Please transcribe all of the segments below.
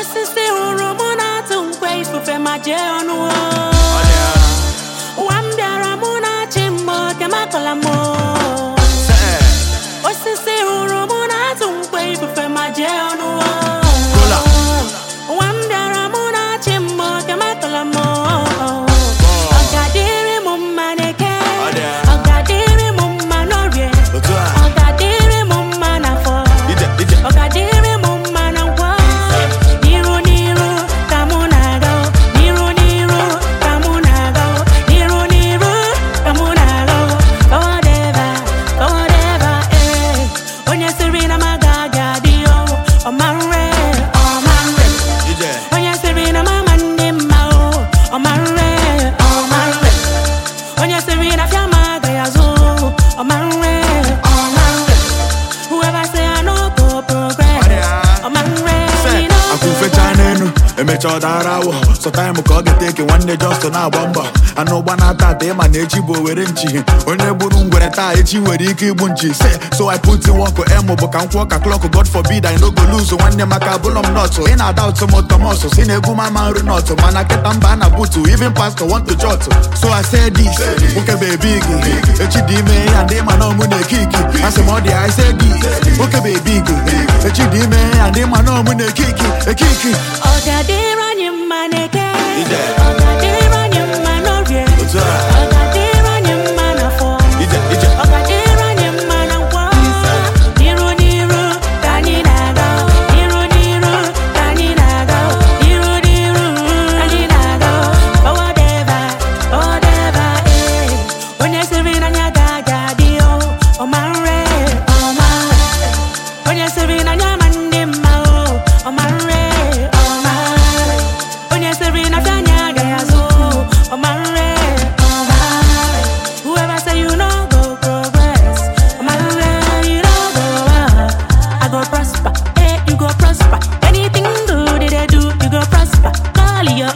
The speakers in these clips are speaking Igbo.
osisi hụrụ mụ na-atụ nkwe ifufe ma jee ọnụ on emecha ọ dara awụ sọtaịmụ ka ọ ga-eteke nwanne Justin na-agba mbọ anụ ụgba na-ata ata ịma na echi bụ owere nchi onye gburu ngwere taa echi nwere ike igbu nchi se so I put in work emu bụ ka m kwụọ ka klọkụ God forbid I no go lose nwanne maka abụlọ m nọtụ ị na-ada ụtụ m ụtọmọsụ si na egwu mama nri nọtụ mana kịta mba a na butu even pastor want to jot so I say this nwoke bebi gị echi dị ime ya ndị ma na ọmụ na-eke iki asị I say this nwoke bebi gị echi dị ime ya ndị ma na ọmụ na-eke iki eke iki ịranye mma na-eke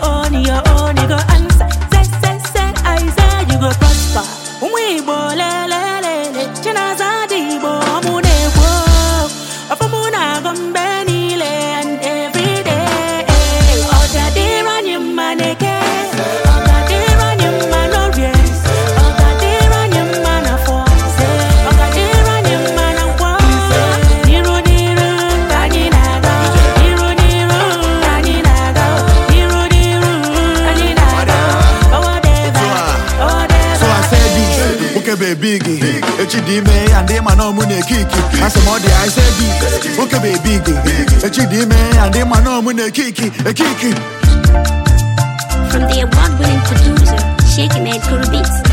own, your own, you go answer. Say, say, say, you okebe big echi dị ime ya ndị ma na ọmụ na-ekiki asị m ọ dị ise bi bụ big echi dị ime ya ndị ma na ọmụ na eke ekiki From the award-winning producer, Sheikh Ahmed Kuru Beats.